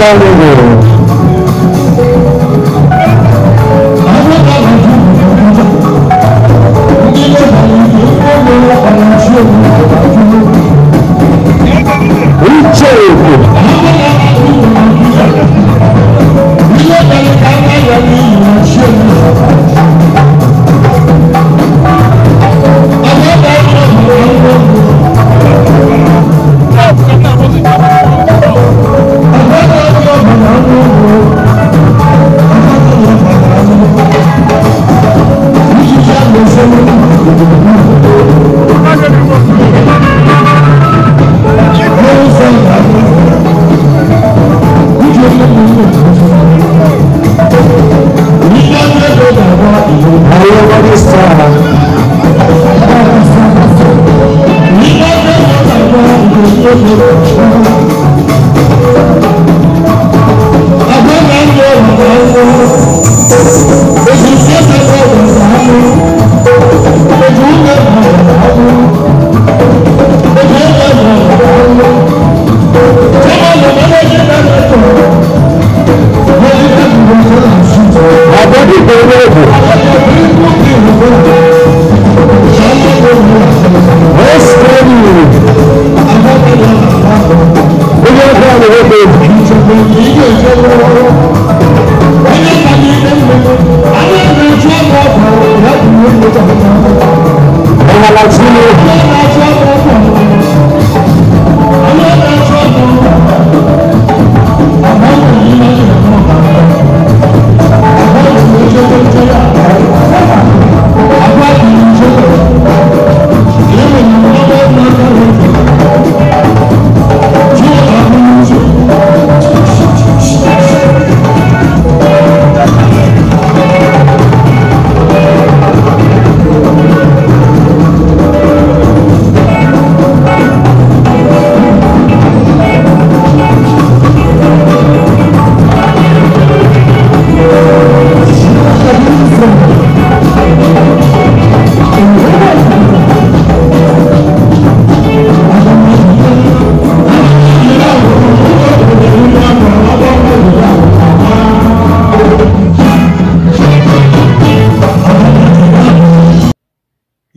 ısrar ediyorum. Brazil.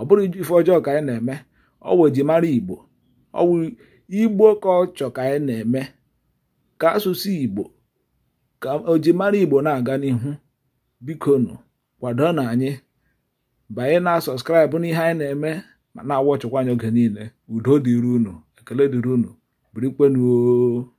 ọ bụrụ ife ọjọọ ka anyị na-eme ọ wụ ejimara igbo ọ wụ igbo ka ọ chọ ka anyị na-eme ka asụsụ igbo ka ojimara igbo na-aga n'ihu bikonu kwado na anyị banye na sọskraịbụ n'ihe anyị na-eme ma na-awachụkwa anyị oge niile udo dịrị unu ekele dịrị unu